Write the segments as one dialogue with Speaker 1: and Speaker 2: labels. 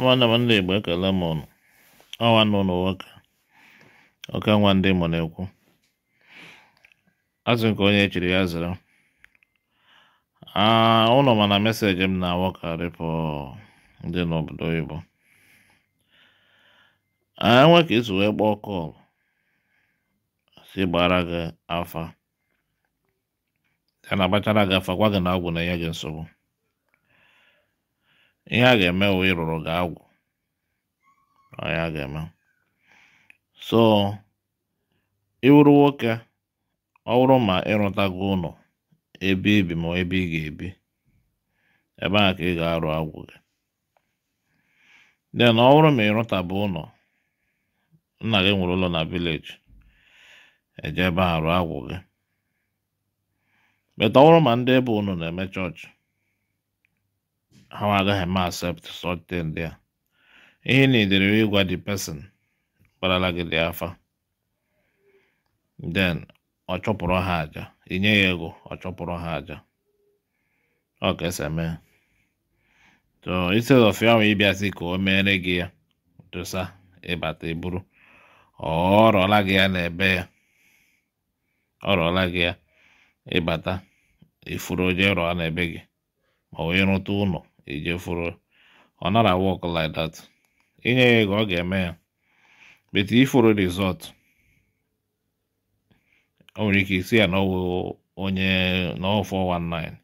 Speaker 1: nwanne m ndị Igbo ekele m ụnụ ọnwa nwanne ụnụ nwoke oke nwa ndị Imo na-ekwu azụ nke onye echiri ya zara ụlọ mana meseji m na-awọkarị pụ ndị n'obodo Igbo enwe ka isi wee kpọọ kọl si gbara gị afa ya na-agbachara gị afa gwa gị na ọgwụ na-enye gị nsogbu ihe a ga-eme wụ ịrụrụ gị agwụ onye a ga-eme so ịwụrụ nwoke ọ bụrụ ma ịrụtago ụlọ ebe ibi ma ebe ị ga-ebi ebe a ka ị ga-arụ agwụ gị den ọ bụrụ ma ịrụtabụ ụlọ nna gị nwere ụlọ na vileji eje ebe arụ agwụ gị beta ọ bụrụ ma ndị ebe ụnụ na-eme chọọchị ha agaghị m accept something a ihe na edere ịgwa the pesin kparala gị dị afa den ọ chọpụrụ ha aja inye ya ego ọ chọpụrụ ha aja ọ ka esi eme so instead of ya nwe ịbịasị ka o mere gị ya dosa ịbata iburu ọ rọọla gị ya n'ebe ya ọ rọọla gị ya ịbata ifuru oje rọọ n'ebe gị ma wee rụta ụlọ ijefuru e ọ nara work like dat inye ya ego ọ ga-eme ya but ifuru result o nwere ike isi ya na ọwụ onye na 419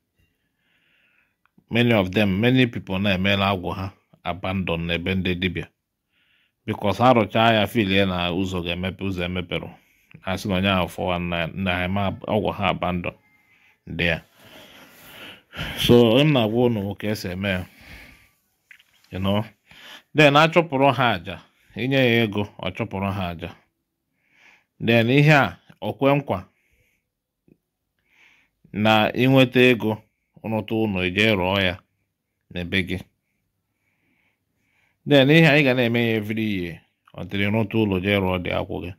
Speaker 1: many of them many people na-emela agwụ ha abandon n'ebe ndị dibịa because ha rụchaa ya filie na ụzọ ga-emepe ụzọ emepere asị na onye ahụ 419 na ọgwụ ha abandon ndị ya so m na-agwa ụnụ ka esi eme ya you know then achụpụrụ ha aja inye ya ego ọ chụpụrụ ha aja then ihe a okwe nkwa na ịnweta ego rụta ụlọ ije rụọ ya n'ebe gị then ihe anyị ga na-eme ya every ihe ọ dịrị rụta ụlọ jee rụọ dị akwụ gị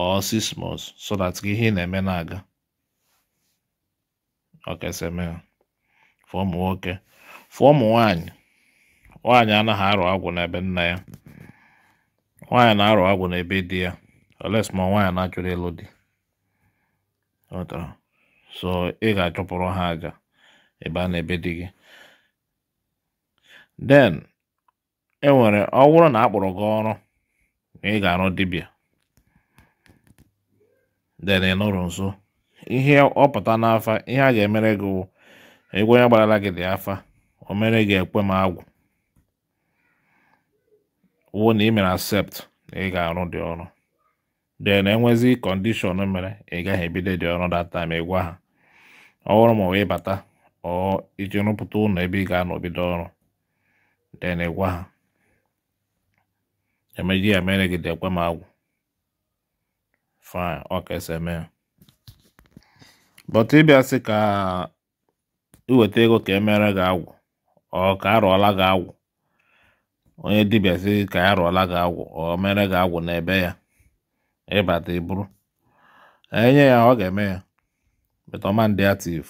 Speaker 1: or six months so that ihe ị na-eme na-aga ọkaseme fụọ ụmụ nwoke fụọ ụmụ nwanyị, nwaanyị anaghị arụ agwụ n'ebe nna ya nwaanyị na-arụ agwụ n'ebe di ya oles ma nwaanyị na achụrụ ịlụ di so ị ga-achụpụrụ ha aja ebe a na-ebe di gị den enwere ọ na akpụrụ gị ọrụ ị ga-arụ dibịa den ị nso ihe ọ pụta n'afa ihe a ga-emere gị wụ egwu onye gbarala gị dị afa o mere gị ekwe m agwụ Wụ na ị mere accept na ị ga-arụ dị ọrụ dee na enwezi kọndishọn mere ị gaghị ebido dị ọrụ data ma ịgwa ha ọhụrụ ma wee bata ọ iji rụpụta ụlọ ebe ị ga-anọ bido ọrụ dee na ịgwa ha emeji ya mere gị dị ekwe m agwụ fine ọ ka esi eme ya But ịbịa sị ka iweta ego ka emere gị agwụ ọ ka arụọla gị agwụ onye dibịa sị ka ya rụọla gị agwụ ọ mere gị agwụ n'ebe ya ịbata iburu enye ya ọ ga-eme ya beta ọma ndị ativ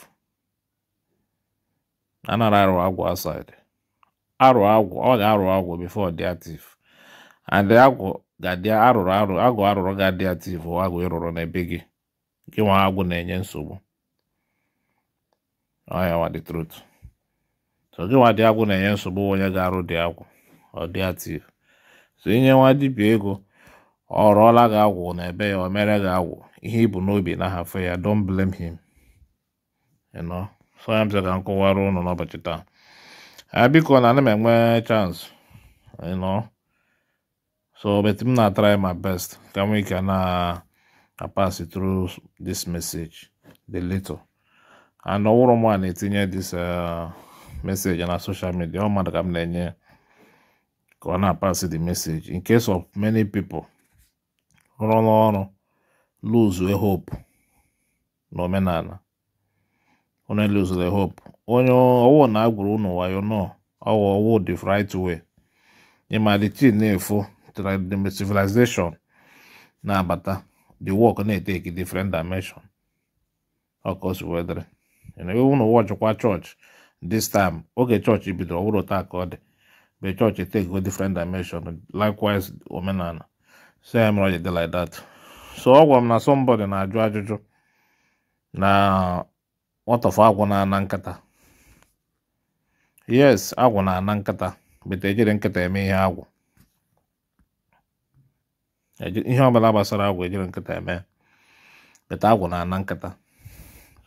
Speaker 1: anara arụ agwụ asid arụ agwụ ọ ga-arụ agwụ bifo dị ativ adị agwụ ga-adị arụrụ arụ agwụ arụrụ ga-adị ativ agwụ ịrụrụ n'ebe gị gị nwa agwụ na-enye nsogbu so gịnwa dị agwụ na-enye nsogbu onye ga-arụ dị agwụ ọ dị ative so inye nwa dibia ego ọ rụọla gị agwụ na ebe ya o mere gị agwụ ihe ibu n'obi na ahafụ ya don blame him so ya mze ka m kụwara ụnụ n'ụbọchị taa a biko na ana m enwe chance so bet m na try my best ka m ike na apasi through this message the little and ọwụrụ mụ a na-etinye dis uh, meseji na social midia ọ mmadụ ka m na-enye ya ka ọ na-apasị the message in case of many people rụrụ n'ọrụ lose hope n'omenala onye lose the hope onye ọwụ na agwụrụ ụnụ wayo nọ ọwụ ọwụ the right way ịma the chin na-efu civilization na-abata the work na-eteki different dimension ọkọsi wedere na ụwa ọchịkwa chọọchị this time oge chọọchị bidoro ọhụrụ taa ka ọ dị be chọọchị take different dimension likewise omenala so ya mere ọ ji dị like that so ọ gwara m na somebody na-ajụ ajụjụ na nwatọfọ agwụ na-ana nkata yes agwụ na-ana nkata bete ejiri nkata eme ihe agwụ ihe ọbụla gbasara agwụ ejiri nkata eme bete agwụ na-ana nkata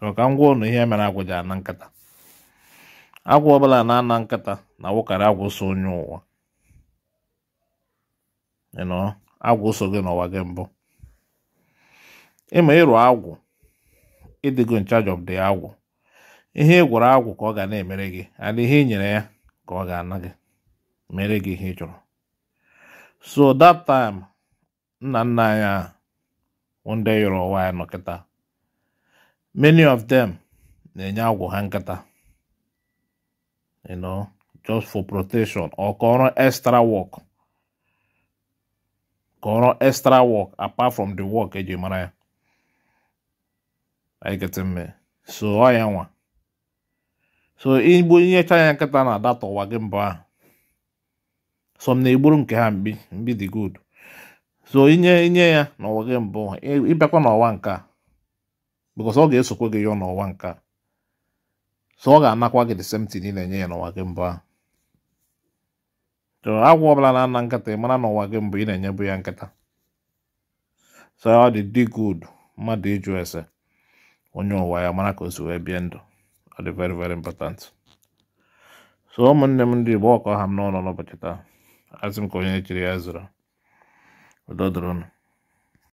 Speaker 1: maka ngwa ụnụ ihe mere agwụ ji ana nkata agwụ ọbụla na-ana nkịta na awụkarị agwụ so onye ụwa agwụ so gị n'ụwa gị mbụ ịma ịrụ agwụ ịdịgo in charge of agwụ ihe ị gwụrụ agwụ ka ọ ga na-emere gị adị ihe ị nyere ya ka ọ ga-ana gị mere gị ihe ị chọrọ so that time nna nna anyị a one day yọrọ ụwa ya nọ kịta many of them na-enye agwụ ha nkata you know just for protection or kọrọ extra work kọrọ extra work apart from the work eji mara ya anyị kete mme so ọ ya nwa so igbo inyecha ya nkịta na ada ụwa gị mbọ ahụ so m na-egburu nke ha mbi mbi dị good so inye inye ya n'ụwa gị mbụ ịbịakwa n'ọwa nke a because ọ ga-esokwa gị ya n'ụwa nke a so ọ ga-anakwa gị the same thing ị na-enye ya n'ụwa gị mbụ ahụ agwọ ọbụla na-ana nkịta ị mara n'ụwa gị mbụ ị na-enyebu ya nkịta so ọ dị dị good mmadụ ịjụ ese onye ụwa ya mara ka o si wee bie ndụ ọ dị very very important so ụmụnne m ndị Igbo ọkọ ha m n'ụlọ n'ụbọchị taa asị m ka onye chiri ya zụrụ udo dịrị